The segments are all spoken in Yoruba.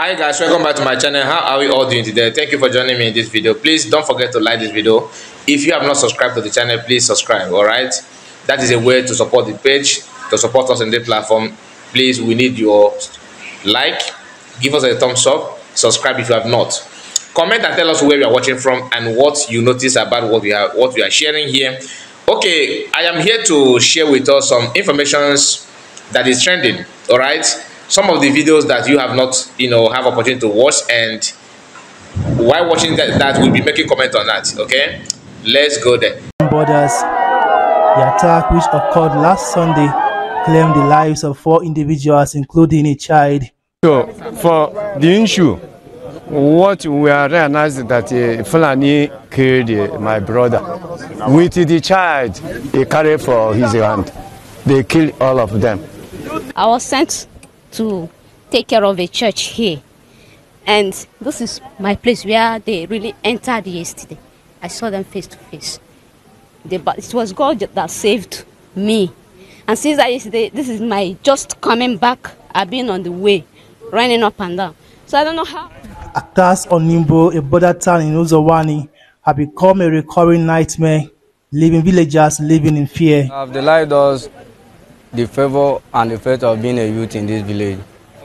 hi guys welcome back to my channel how are we all doing today thank you for joining me in this video please don't forget to like this video if you have not subscribed to the channel please subscribe all right that is a way to support the page to support us in the platform please we need your like give us a thumbs up subscribe if you have not comment and tell us where you are watching from and what you notice about what we are what we are sharing here okay i am here to share with us some informations that is trending all right some of the videos that you have not, you know, have opportunity to watch and while watching that, that we'll be making comment on that, okay? Let's go there. Borders, the attack which occurred last Sunday claimed the lives of four individuals, including a child. So, for the issue, what we are realizing that uh, Fulani killed uh, my brother. With the child he carried for his hand, they killed all of them. I was sent to take care of a church here. And this is my place where they really entered yesterday. I saw them face to face. They, but it was God that saved me. And since is yesterday, this is my just coming back. I've been on the way, running up and down. So I don't know how. Attacks on Nimbo, a border town in Uzawani, have become a recurring nightmare, leaving villagers living in fear. Have the light the favor and the of being a youth in this village.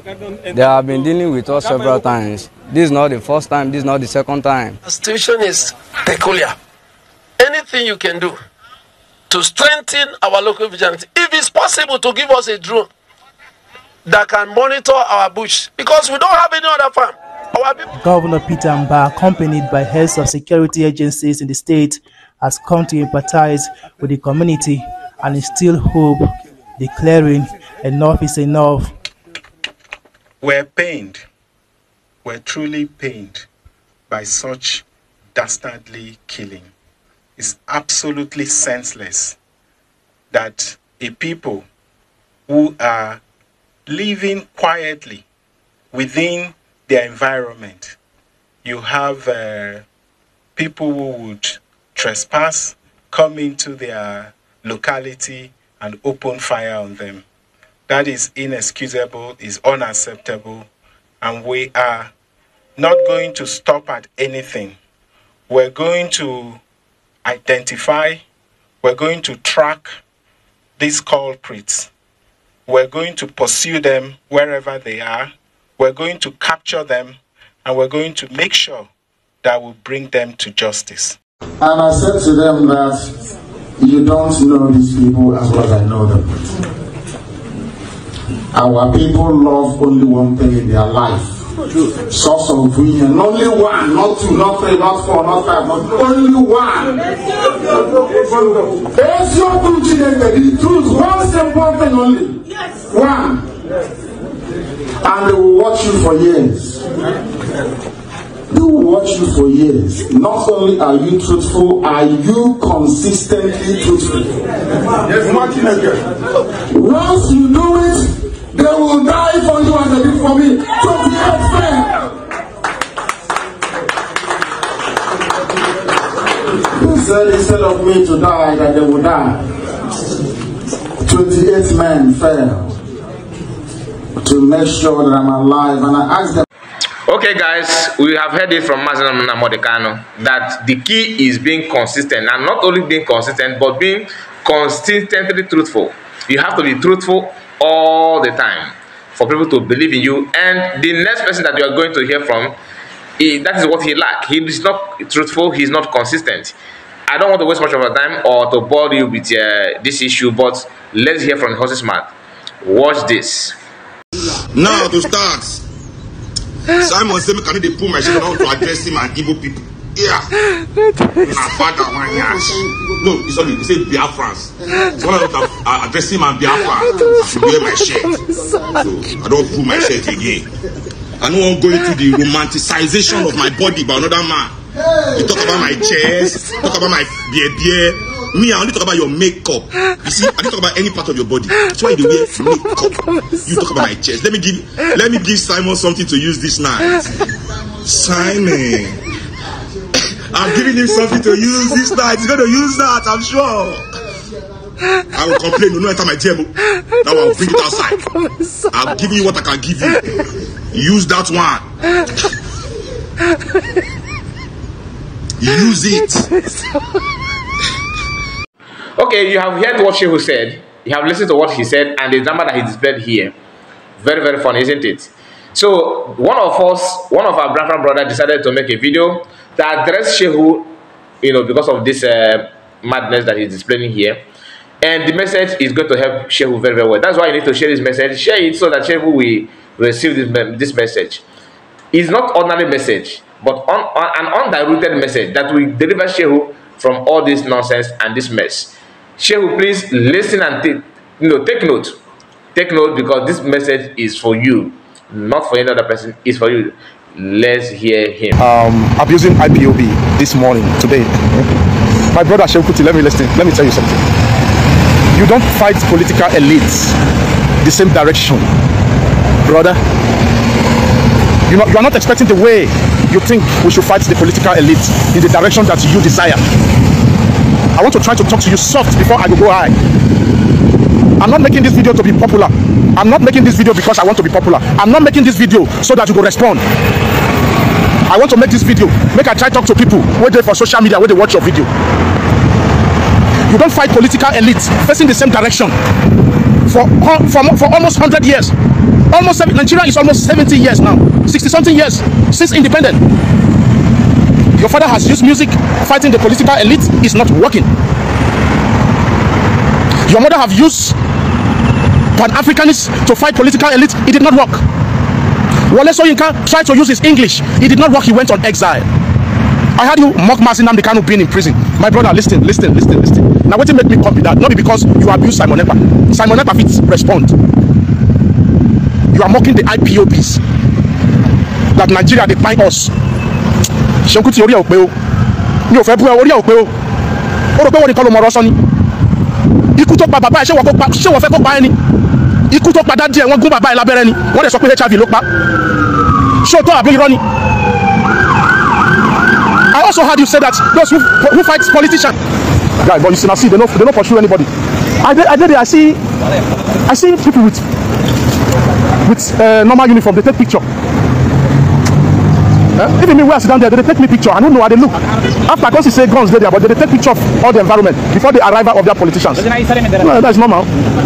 They have been dealing with us several times. This is not the first time, this is not the second time. The situation is peculiar. Anything you can do to strengthen our local vigilance, if it's possible to give us a drone that can monitor our bush, because we don't have any other farm. Governor Peter Mba, accompanied by heads of security agencies in the state, has come to empathize with the community and instill hope declaring, Enough is enough. We're pained, we're truly pained by such dastardly killing. It's absolutely senseless that a people who are living quietly within their environment, you have uh, people who would trespass, come into their locality, and open fire on them. That is inexcusable, is unacceptable, and we are not going to stop at anything. We're going to identify, we're going to track these culprits. We're going to pursue them wherever they are. We're going to capture them and we're going to make sure that we bring them to justice. And I said to them that You don't know these people as well as I know them. Our people love only one thing in their life. Source of union. Only one, not two, not three, not four, not five, but only one. That's your truth, the truth. One simple thing only. One. And they will watch you for years. People watch you for years. Not only are you truthful, are you consistently truthful? Yes, Martin again. Once you do it, they will die for you as they did for me. 28 men. He said, instead of me to die, that they would die. 28 men fell to make sure that I'm alive. And I asked them, Okay, guys, we have heard it from Mazenam Namodekano that the key is being consistent and not only being consistent but being consistently truthful. You have to be truthful all the time for people to believe in you. And the next person that you are going to hear from, he, that is what he lacks. He is not truthful. He is not consistent. I don't want to waste much of your time or to bore you with uh, this issue, but let's hear from horse's mouth. Watch this. Now to start. simon say make i no dey put myself down to address him and evil people yeah my father wan yansh no he sorry he say biafrans so when i look at uh, address him and biafra i should wear my shirt so i don't pull my shirt again i know I'm going to the romanticization of my body by another man you talk about my chest talk about my beer beer me i only talk about your makeup you see i don't talk about any part of your body That's why you dey wear makeup you talk about my chest let me give let me give simon something to use this night simon i'm giving him something to use this night he's gonna use that i'm sure. I will complain. You no enter my table. Now I'll bring it outside. I'll give you what I can give you. Use that one. Use it. Okay, you have heard what Shehu said. You have listened to what he said and the number that he displayed here. Very, very funny, isn't it? So one of us, one of our brother brother decided to make a video that address Shehu, you know, because of this uh, madness that he's displaying here. And the message is going to help Shehu very, very well. That's why you need to share this message. Share it so that Shehu will receive this, this message. It's not ordinary message, but on, on, an undiluted message that will deliver Shehu from all this nonsense and this mess. Shehu, please listen and take, you know, take note. Take note because this message is for you, not for any other person. It's for you. Let's hear him. Um, abusing IPOB this morning, today. My brother Shehu Kuti, let me listen. Let me tell you something. You don't fight political elites the same direction, brother. You know, you are not expecting the way you think we should fight the political elites in the direction that you desire. I want to try to talk to you soft before I go high. I'm not making this video to be popular. I'm not making this video because I want to be popular. I'm not making this video so that you go respond. I want to make this video. Make I try to talk to people where they for social media, where they watch your video. You don't fight political elites facing the same direction for for, for almost 100 years. Almost Nigeria is almost 70 years now, 60 something years since independence. Your father has used music fighting the political elite. It's not working. Your mother have used Pan-Africanists to fight political elite. It did not work. Wole Soyinka tried to use his English. It did not work. He went on exile. I had you mock Mazi Nnamdi being in prison. My brother, listen, listen, listen, listen. Now, what you make me come be that? Not because you abuse Simon Ekpa. Simon Ekpa fit respond. You are mocking the IPOBs that Nigeria dey buy us Seun orí ẹ̀ ò pé o mi ò fẹ́ bú ẹ orí ẹ̀ ò pé o ó rò pé wọ́n nìkan ló mọ ọ̀rọ̀ sọ ni ikú tó pa bàbá ẹ̀ ṣé wọ́n fẹ́ kó pa ẹ ni ikú tó pa dádì ẹ̀ wọ́n gún bàbá ẹ̀ lábẹ́rẹ́ ni wọ́n dẹ̀ sọ pé HIV ló pa ṣé o tọ́ àbí irọ́ ni I also heard you say that those who, who fight politicians guy but you see na see they no they no pursue anybody I dey I dey there I see I see people with with uh, normal uniform dey take picture Eh? Even me where I sit down there, they take me picture. I don't know how they look. After I see say guns there, but they take picture of all the environment before the arrival of their politicians. No, that's normal.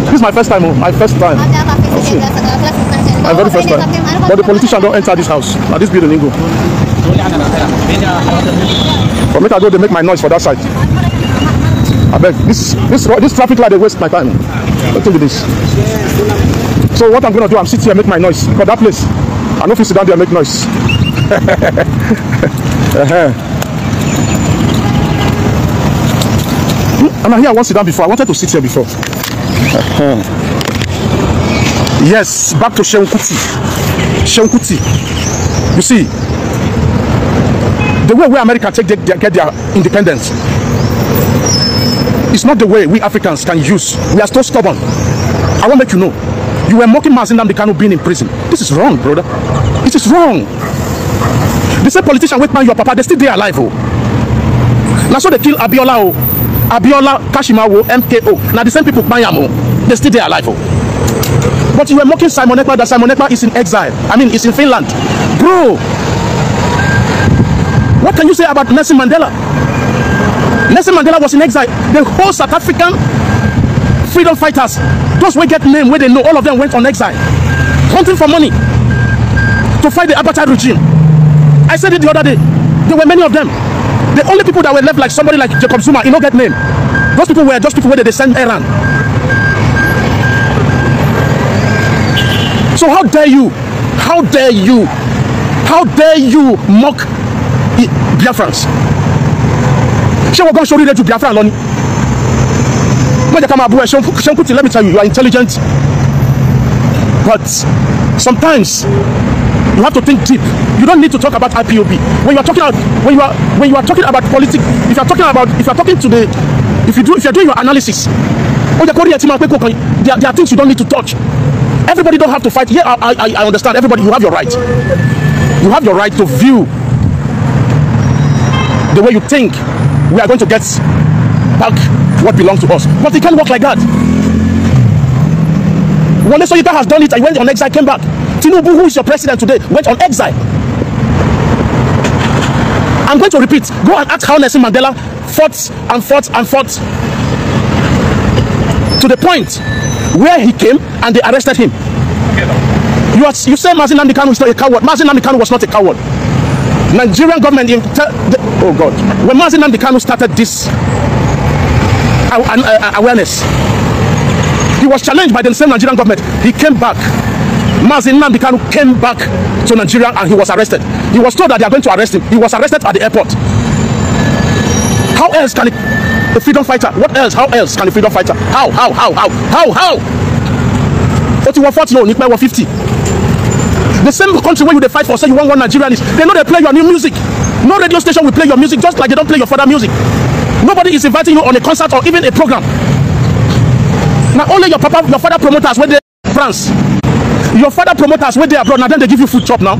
This is my first time, oh, my first time. My very first time. But the politician don't enter this house. Now this building go. For me, I go, they make my noise for that side. I beg. This this this traffic light, they waste my time. Don't do this. So what I'm gonna do, I'm sitting here, make my noise. for that place, I know if you sit down there, make noise. I'm I hear I want to sit down before. I wanted to sit here before. yes, back to Shehu Kuti. You see, the way where America take their, get their independence is not the way we Africans can use. We are still stubborn. I want to let you know. You were mocking Mazin Namdekanu being in prison. This is wrong, brother. It is wrong the same politician wey man, your papa they still dey alive oh. Now so they kill abiola oh, abiola kashimawo mko Now the same people kpan oh, they still dey alive oh. but you were mocking simon ekpa that simon ekpa is in exile i mean is in finland bro what can you say about nelson mandela nelson mandela was in exile the whole south african freedom fighters those wey get name where they know all of them went on exile hunting for money to fight the apartheid regime I said it the other day. There were many of them. The only people that were left like somebody like Jacob Zuma, you know get name. Those people were just people where they send Iran. So how dare you? How dare you? How dare you mock Biafrans? Ṣé wọ́n gan ṣe oríire ju Biafran lọ ni? Má jẹ́ ká máa bú ẹ, Ṣé let me tell you, you are intelligent. But sometimes you have to think deep. You don't need to talk about IPOB. When you are talking about when you are when you are talking about politics, if you are talking about if you are talking to the if you do if you are doing your analysis, oh the Korea team there, are there are things you don't need to touch. Everybody don't have to fight. Yeah, I, I, I understand. Everybody, you have your right. You have your right to view the way you think we are going to get back what belongs to us. But it can't work like that. Wole Soyinka has done it. and when the next exile, came back. Tinubu, who is your president today, went on exile. I'm going to repeat. Go and ask how Nelson Mandela fought and fought and fought to the point where he came and they arrested him. You, are, you say Mazin Namdekan is not a coward. Mazin Namdekan was not a coward. Nigerian government, in oh God, when Mazin Namdekan started this uh, awareness, he was challenged by the same Nigerian government. He came back Mazin Nnamdi Kanu came back to Nigeria and he was arrested. He was told that they are going to arrest him. He was arrested at the airport. How else can it, a freedom fighter? What else? How else can a freedom fighter? How? How? How? How? How? How? Ó ti wọ forty o ní pẹ́ wọ fifty. The same country where you dey fight for say you want one Nigerian is. they know they play your new music. No radio station will play your music just like they don't play your father music. Nobody is inviting you on a concert or even a program. Now only your papa your father promoters wey dey France your father promoters wey dey abroad na dem dey give you food chop now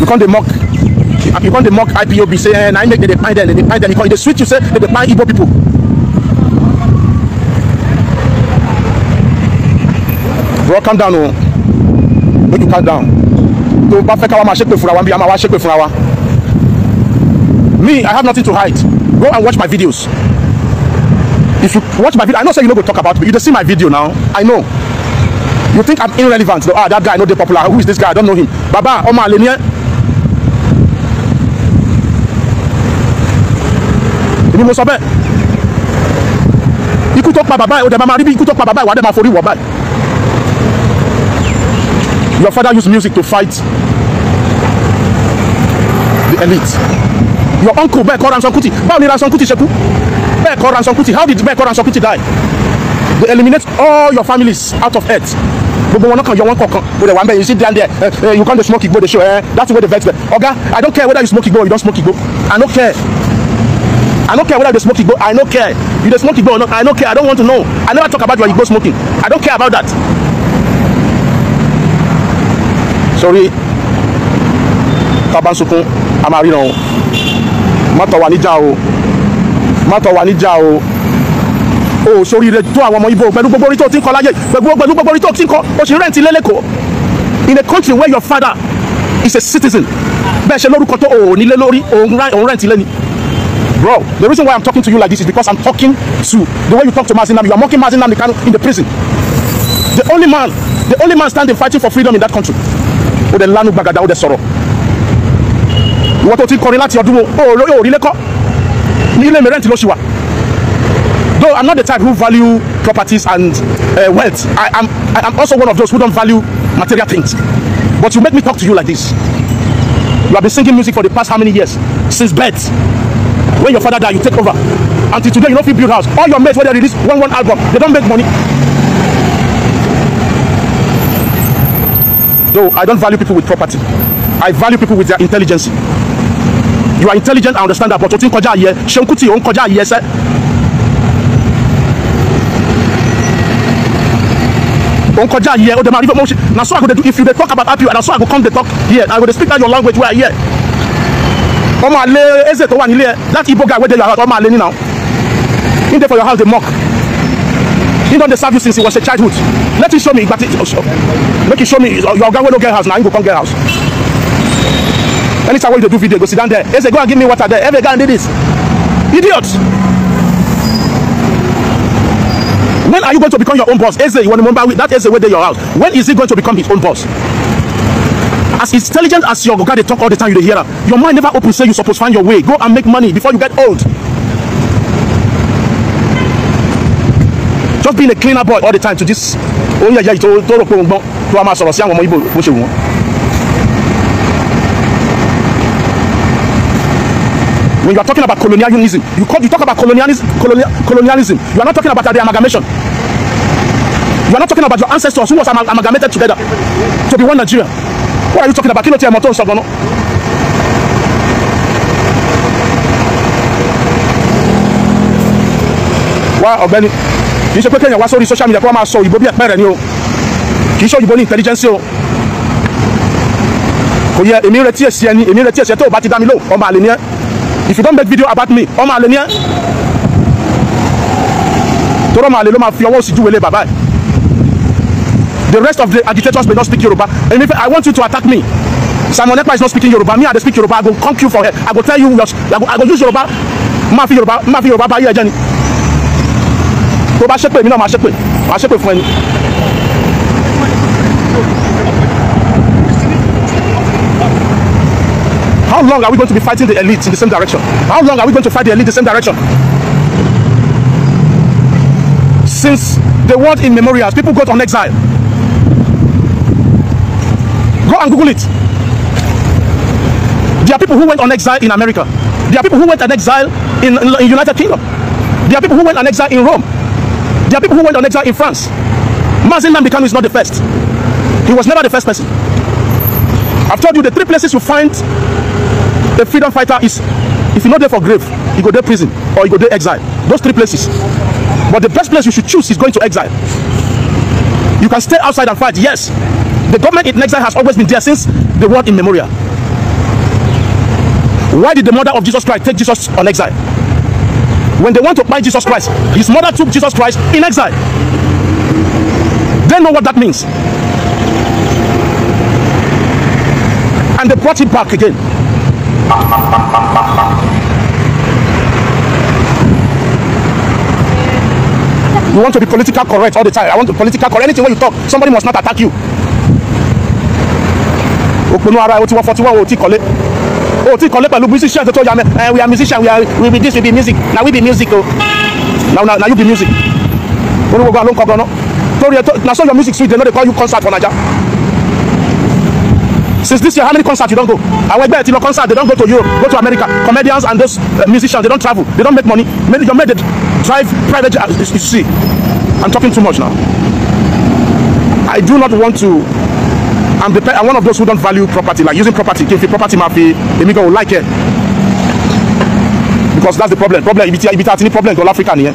you come dey mock you come dey mock ipob say eh, na im make dem dey kpai dem dem dey kpai dem e dey sweet you say dem dey kpai igbo people bro calm down o oh. make you calm down tó o bá fẹ́ káwa máa ṣépè fúnra wa bí a máa wá ṣépè fúnra wa me i have nothing to hide go and watch my videos if you watch my video i know say you no go talk about me you dey see my video now i know you think i'm irrelevant though ah that guy no dey popular who is this guy i don't know him baba ọmọ àlè ni ẹ èmi mo sọ bẹ́ẹ̀ ikú tó pa bàbá ẹ o dẹ̀ máa rí bí ikú tó pa bàbá ẹ wà á dẹ̀ máa forí wọ̀ báyìí your father used music to fight the elite your uncle bẹ́ẹ̀ kọ́ Ransome Kuti báwo ni Ransome Kuti ṣe kú. Bekor and Sankuti how did Bekor and Sankuti die they eliminate all your families out of earth gbogbo wọn lọkàn yọ wọn kọ̀ọ̀kan o de wa mbẹ you sit down there uh, uh, you come dey smoke igbo dey show uh, eh, that thing wey dey vex me oga i don care whether you smoke igbo or you don smoke igbo i no care i no care whether you dey smoke igbo i no care you dey smoke igbo or not i no care i don want to know i never talk about your igbo smoking i don care about that sorry tabansunkun a máa ríran níjà o má tọ̀ níjà o o sórí rẹ tó àwọn ọmọ ibo pẹ̀lú gbogbo orí tó ti ń kọ láyé pẹ̀lú gbogbo orí tó ti ń kọ o sì rẹ́ǹtì lélẹ́kọ̀ọ́ in a country where your father is a citizen bẹ́ẹ̀ ṣe lórúkọ tó o ò nílé lórí òun rẹ́ǹtì lẹ́ni bro the reason why i'm talking to you like this is because i'm talking to the way you talk to mazinam you are mocking mazinam in the prison the only man the only man standing fighting for freedom in that country o de lanu gbagada o de sọ̀rọ̀ ìwọ tó ti kọrin láti ọdún o ò rí lẹ́kọ̀ọ́ ilé mi rent ló ṣì wà though i'm not the type who value properties and uh, wealth i am i am also one of those who don't value material things but you make me talk to you like this you have been singing music for the past how many years since birth when your father die you take over until today you no fit build house all your mates wey dey release one one album they don make money though i don value people with property i value people with their intelligence you are intelligent and understand that but o ti ń kọjá àyè Ṣeun Kútì ò ń kọjá àyè ẹsẹ́. ò ń kọjá àyè ó dẹ̀ máa rí fẹ́ mo ṣe na so I go dey do if you dey talk about happy na so I go come dey talk here I go dey speak that your language wey I hear. ọmọ àlè eze tó wà nílé ẹ láti Igbo guy wey dey your house ọmọ àlè ni now him dey for your house dey mock he don dey serve you since he was a childhood let him show me ìgbà make he show me your oga wey no get house na him go come get house anytime wey you do video go sit down there eze go and give me water there every guy did this idiot when are you going to become your own boss eze iwonimomba that eze wey dey your house when is he going to become his own boss as intelligent as your oga dey talk all the time you dey hear am your mind never open say you suppose find your way go and make money before you get old just being a cleaner boy all the time to this oyeyeye oh, to to rò pé òun gbọ́n tó a máa sọ̀rọ̀ sí àwọn ọmọ Igbo bó ṣe wù wọ́n. when you are talking about colonialism you call you talk about colonialism colonial, colonialism you are not talking about the amalgamation you are not talking about your ancestors who was amal amalgamated together to be one Nigeria what are you talking about kí ló ti ẹ̀mọ́ tó ń sọ gan kì í ṣe pé kéèyàn wá sórí social media kó wá máa sọ òyìnbó bí ẹ̀pẹ́ rẹ̀ ni o kì í ṣe òyìnbó ní intelligence o kò yẹ èmi retí èsì ẹni èmi retí èsì ẹ tó o bá ti dá mi lò ọmọ àlè ni ẹ if you don't make video about me ọmọ àlè ni ẹ tọrọ ọmọ àlè ló máa fi ọwọ́ sí júwèlé bàbá ẹ the rest of the agitators may not speak Yoruba and if I want you to attack me Simon Ekpa is not speaking Yoruba me I dey speak Yoruba I go conk you for head I go tell you your I go I go use Yoruba máa fi Yoruba máa fi Yoruba bá yé ẹjẹ ni tó bá ṣépè mi náà máa ṣépè máa ṣépè fún ẹni. How long are we going to be fighting the elite in the same direction? How long are we going to fight the elite in the same direction? Since the world in memorials, people got on exile. Go and Google it. There are people who went on exile in America. There are people who went on exile in, in, in United Kingdom. There are people who went on exile in Rome. There are people who went on exile in France. Mazin Nambikanu is not the first. He was never the first person. I've told you the three places you find a freedom fighter is if you're not there for grave you go there prison or you go there exile those three places but the best place you should choose is going to exile you can stay outside and fight yes the government in exile has always been there since the world in memorial why did the mother of jesus christ take jesus on exile when they want to buy jesus christ his mother took jesus christ in exile they know what that means and they brought him back again You want to be political correct all the time. I want to be political correct. Anything when you talk, somebody must not attack you. Òpinnu ara ẹ̀ o ti wọ́n forty one o ti kọ́lé. O ti kọ́lé pẹ̀lú musician tó tó yà mí. Eh, we are musician, we are we be this, we be music. Now we be music o. now now you be music. Orúkọ gan ló ń kọ gan náà. na so your music sweet, They no dey call you concert for Naija since this year how many concerts you don go àwọn ẹgbẹ́ ẹ̀ ti lọ concert they don go to Europe go to America comedians and those uh, musicians they don travel they don make money many your men dey drive private jet uh, you see I'm talking too much now I do not want to I'm the I'm one of those who don't value property like using property kí property ma fi èmi gan o like it. because that's the problem problem ibi tí ibi tí a ti problem gan l'Africa nìyẹn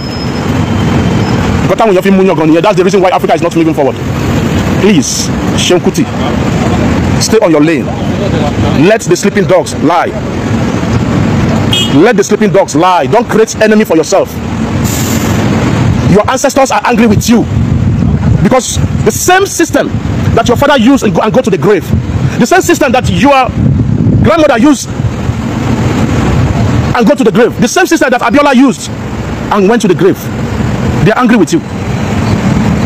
nǹkan táwọn èèyàn fi mú yàn gan nìyẹn that's the reason why Africa is not moving forward please Seun Kuti. Stay on your lane. Let the sleeping dogs lie. Let the sleeping dogs lie. Don't create enemy for yourself. Your ancestors are angry with you because the same system that your father used and go, and go to the grave, the same system that your grandmother used and go to the grave, the same system that Abiola used and went to the grave, they are angry with you.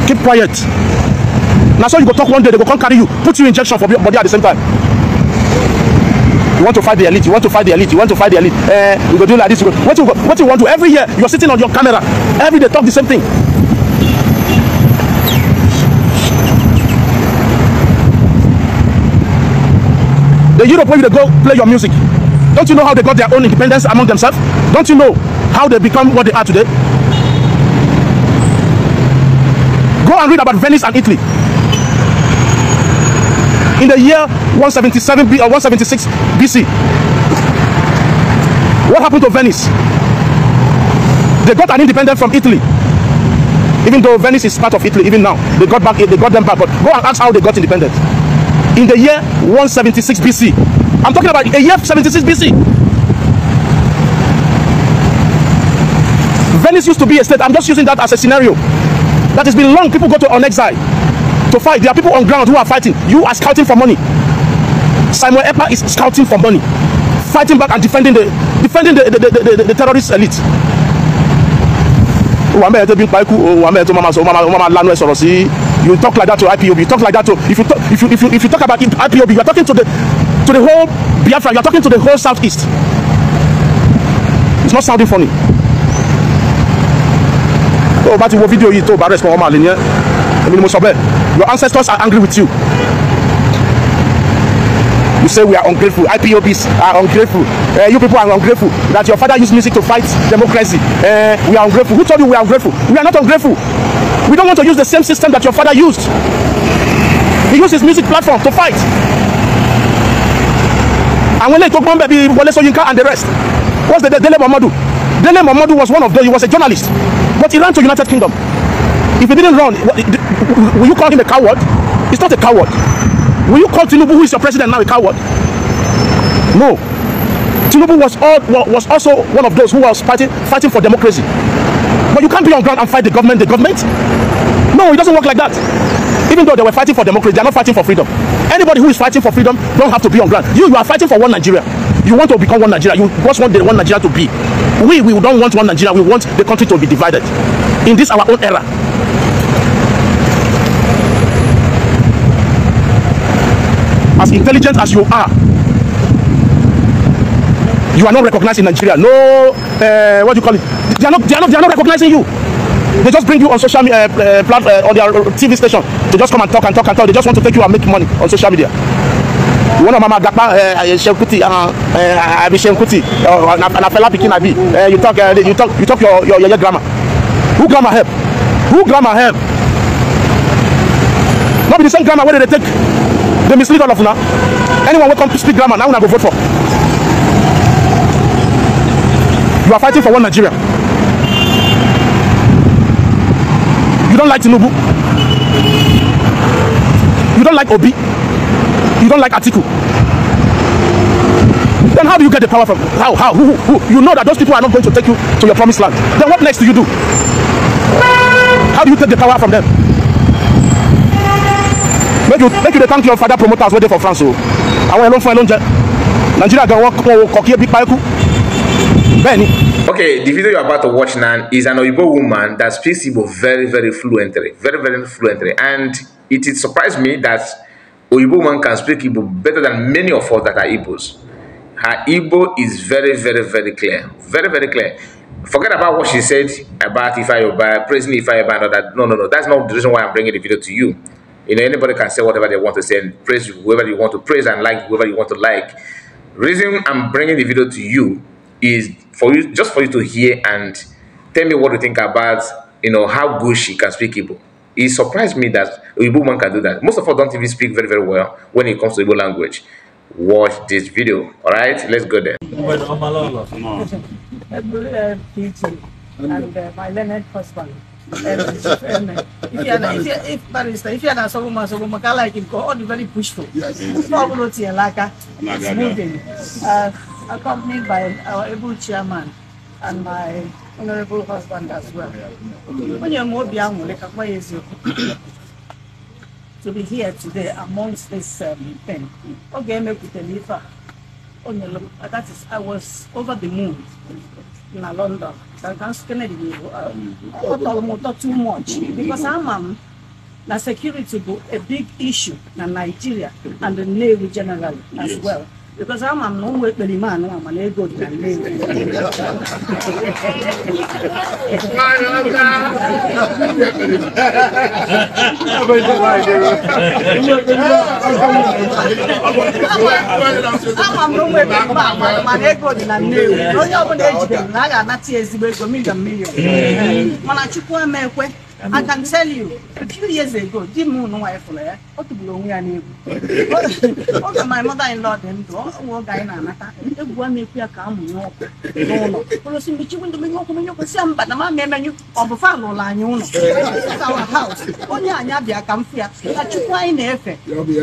Keep quiet. na so you go talk one day they go come carry you put you injection for your body at the same time you want to fight the elite you want to fight the elite you want to fight the elite eh you go do like this you go what you go what you want to every year you are sitting on your camera every day talk the same thing the europe where you go play your music don't you know how they got their own independence among themselves don't you know how they become what they are today go and read about venice and italy in the year 177 B or uh, 176 BC. What happened to Venice? They got an independence from Italy. Even though Venice is part of Italy, even now they got back, they got them back. But go and ask how they got independent. In the year 176 BC, I'm talking about a year 76 BC. Venice used to be a state. I'm just using that as a scenario. That has been long. People go to on exile. to fight. There are people on ground who are fighting. You are scouting for money. Simon Epa is scouting for money, fighting back and defending the defending the the the, the, the terrorist elite. Wà mẹ́rin tó bí ń pa ikú o, wà mẹ́rin tó máa sọ, o máa lanu ẹ e sọ̀rọ̀ sí. You talk like that to IPOB, you talk like that to if you talk if you if you if you talk about IPOB, you are talking to the to the whole Biafra, you are talking to the whole southeast. It's not sounding funny. Tó o oh, bá ti wo fídíò yìí tó o bá respond, wọ́n máa lè ní ẹ́. Èmi ni mo sọ bẹ́ẹ̀. Your ancestors are angry with you. You say we are ungrateful. IPOBs are ungrateful. Uh, you people are ungrateful. That your father used music to fight democracy. Uh, we are ungrateful. Who told you we are ungrateful? We are not ungrateful. We don't want to use the same system that your father used. He used his music platform to fight. Àwọn eléyìí tó gbọ́n bẹ̀ bíi Wọlé Ṣóyínká and the rest. What's the Dele Momodu? Dele Momodu was one of those. He was a journalist. But he ran to United Kingdom. If he didn't run, what, will you call him a coward? He's not a coward. Will you call Tinubu, who is your president now, a coward? No. Tinubu was all, was also one of those who was fighting fighting for democracy. But you can't be on ground and fight the government, the government. No, it doesn't work like that. Even though they were fighting for democracy, they are not fighting for freedom. Anybody who is fighting for freedom don't have to be on ground. You, you are fighting for one Nigeria. You want to become one Nigeria. You just want the one Nigeria to be. We, we don't want one Nigeria. We want the country to be divided. In this our own era, as intelligent as you are you are not recognized in Nigeria no uh, what do you call it they are not they are not they are not recognizing you they just bring you on social media uh, eh, uh, eh, plat- uh, on their TV station they just come and talk and talk and talk they just want to take you and make money on social media one of mama gapa Shekuti I be Shekuti na fela pikin I be you talk uh, you talk you talk your your your grammar who grammar help who grammar help no be the same grammar wey dey take They mislead all of now. Anyone welcome to speak grammar, now una go vote for. You are fighting for one Nigeria. You don't like Tinubu. You don't like Obi. You don't like Atiku. Then how do you get the power from? How? How? Who, who, who? You know that those people are not going to take you to your promised land. Then what next do you do? How do you take the power from them? you make you dey thank your father promoters wey dey for france o àwọn yẹn ló fún ẹ nigeria gan wọn wọn kọ kí ebi pa ẹkú ni. Okay, the video you are about to watch now is an Oyibo woman that speaks Igbo very, very fluently, very, very fluently, and it, it surprised me that Oyibo woman can speak Igbo better than many of us that are Igbos. Her Igbo is very, very, very clear, very, very clear. Forget about what she said about Ifayoba, praising Ifayoba and all that. No, no, no, that's not the reason why I'm bringing the video to you. You know, anybody can say whatever they want to say and praise whoever you want to praise and like whoever you want to like. Reason I'm bringing the video to you is for you just for you to hear and tell me what you think about you know how good she can speak Igbo. It surprised me that Igbo man can do that. Most of us don't even speak very very well when it comes to Igbo language. Watch this video. All right, let's go there. and uh, my learned husband. if you you, are, if if, are not Solomon, Solomon, I like him, go on, you very pushful. It's moving. Uh, accompanied by our able chairman and my honorable husband as well. to be here today amongst this um, thing. Okay, make it deliver. That is, I was over the moon in London. against Kennedy, uh, I thought too much mm-hmm. because I'm um, security go a big issue in Nigeria and the Navy generally as yes. well. because ama m na ụmụ ekperima anụ a mana ego dị na Nnewi onye ọbụla ejidere na a ga-anata ya ezigbo ego milion milion mana Chukwu emekwe I can tell you, a few years ago, di m unu nwa ịfụrụ ya, o tụgburu onwe ya n'egwu. Oge my mother-in-law dị ndụ, nwa oge anyị na-anata, egwu a na-ekwu ya ka a mụnye ọkụ n'ụlọ. Ụlọ si mmechi windo menye ọkụ menye ọkụ si mba na mama emenyu, ọ bụ fa ụlọ anyị ụlọ. It's our house. Onye anyị abịa ka m fụ ya, ka Chukwu anyị na-efe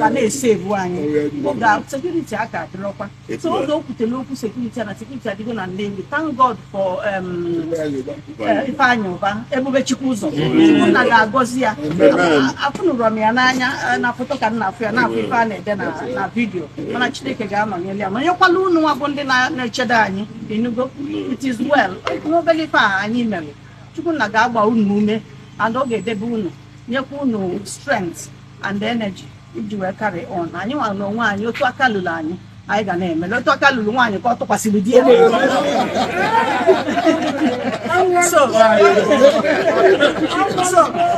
ka na-ese ebu anyị. Oge sekuriti a ka adịrọkwa. So oge o kwutere okwu sekuriti a na sekuriti adịgo na ndị Thank God for um, uh, Ifeanyị Ụba, Ebube Chukwu ụzọ. iwu nna ga-agọzi ya afụnụrọ m ya n'anya eh, na foto ka m na-afụ ya na-afụ ife a na-ede na vidiyo mana chineke ga-anọnyere ya nọnyekwala unu nwa bụ ndị na echedo anyị enugo it is well n'obere ife a anyị mere chukwu ga-agba unu ume and ọ ga-edebe unu nyekwa unu strength and energy iji wee kari on anyị nwa n'onwe anyị otu aka lụrụ anyị anyị ga na-eme leta ọka lụrụ nwaanyị ka ọ tụkwasịrị di ya so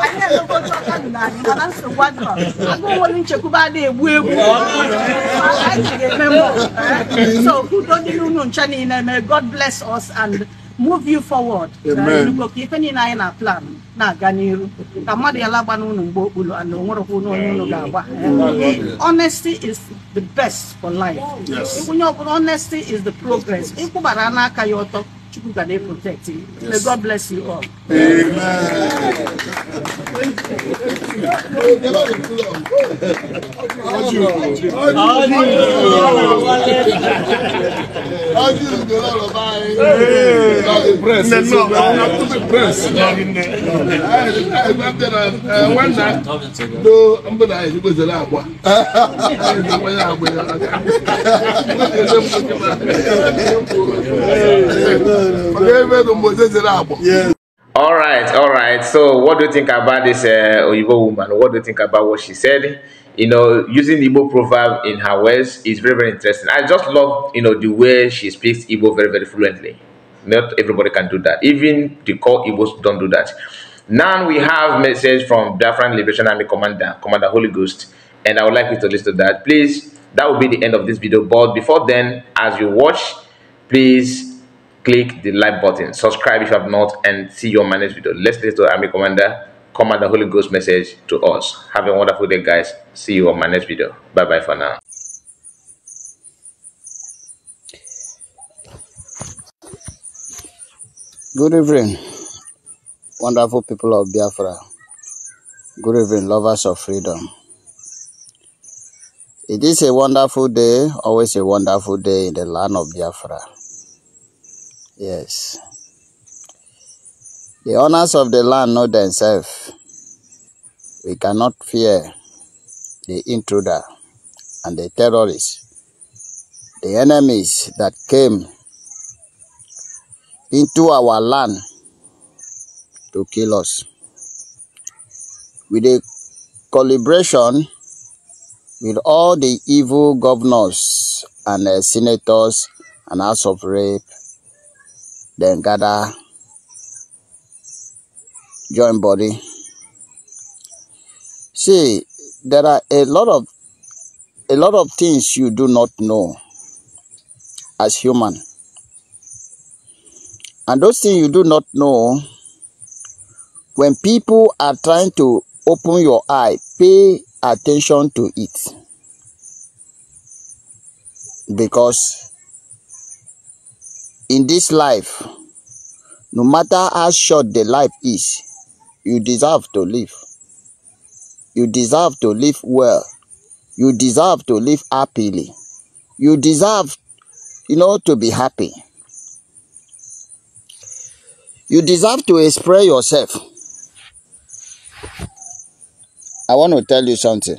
anyị na-elekọta aka n'ala mana nsogbu adịrọ agụwolu nchekwube a na-egbu egbu anyị ga-eme mbọ so udo dị n'unu ncha niile may God bless us and move you forward Amen. plan na honesty is the best for life onye ọbụla honesty is the progress ịkwụbara n'aka ya ọtọ Chukwu ga na you may God bless you all Amen. How you do not buy? Not No, no, I have to be impressed. I went there one night. No, I'm going to have to go All right, all right. So, what do you think about this uh, woman? What do you think about what she said? you know, using Igbo proverb in her words is very, very interesting. I just love, you know, the way she speaks Igbo very, very fluently. Not everybody can do that. Even the core Igbos don't do that. Now we have message from Biafran Liberation Army Commander, Commander Holy Ghost, and I would like you to listen to that. Please, that will be the end of this video. But before then, as you watch, please click the like button, subscribe if you have not, and see your managed video. Let's listen to Army Commander come at the Holy Ghost message to us. Have a wonderful day, guys. See you on my next video. Bye bye for now. Good evening, wonderful people of Biafra. Good evening, lovers of freedom. It is a wonderful day, always a wonderful day in the land of Biafra. Yes. The owners of the land know themselves. We cannot fear the intruder and the terrorists, the enemies that came into our land to kill us. With a collaboration with all the evil governors and uh, senators and House of rape. then gather joint body. See, there are a lot of a lot of things you do not know as human. And those things you do not know, when people are trying to open your eye, pay attention to it. Because in this life, no matter how short the life is, you deserve to live. You deserve to live well. You deserve to live happily. You deserve, you know, to be happy. You deserve to express yourself. I want to tell you something.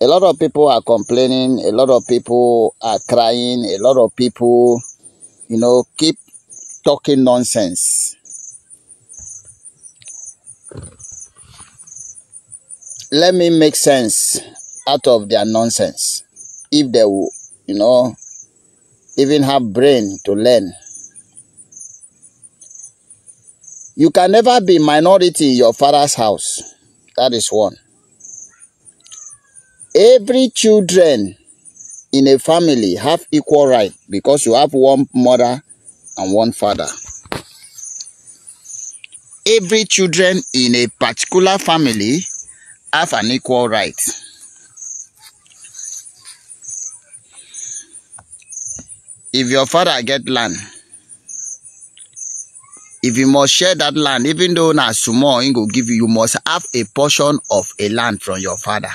A lot of people are complaining, a lot of people are crying, a lot of people, you know, keep talking nonsense. let me make sense out of their nonsense. If they will, you know, even have brain to learn. You can never be minority in your father's house. That is one. Every children in a family have equal right because you have one mother and one father. Every children in a particular family have an equal right. If your father get land, if you must share that land, even though na small, he will give you, you must have a portion of a land from your father.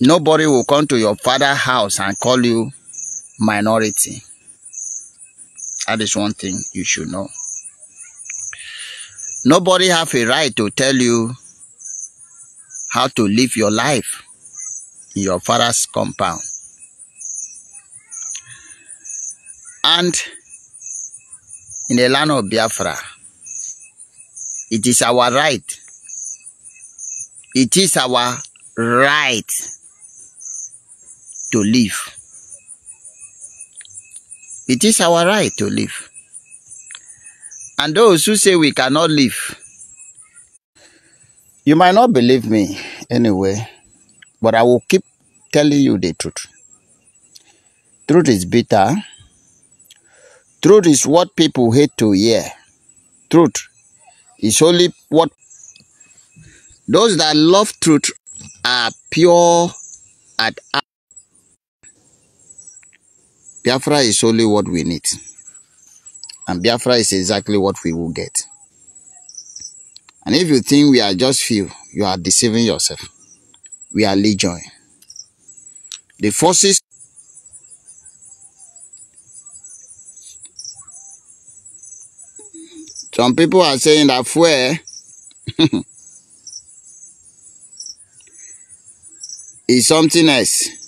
Nobody will come to your father house and call you minority. That is one thing you should know. Nobody have a right to tell you how to live your life in your father's compound. And in the land of Biafra, it is our right. It is our right to live. It is our right to live and those who say we cannot live. You might not believe me anyway, but I will keep telling you the truth. Truth is bitter. Truth is what people hate to hear. Truth is only what those that love truth are pure at Biafra is only what we need. And Biafra is exactly what we will get. And if you think we are just few, you are deceiving yourself. We are legion. The forces Some people are saying that fuel is something else.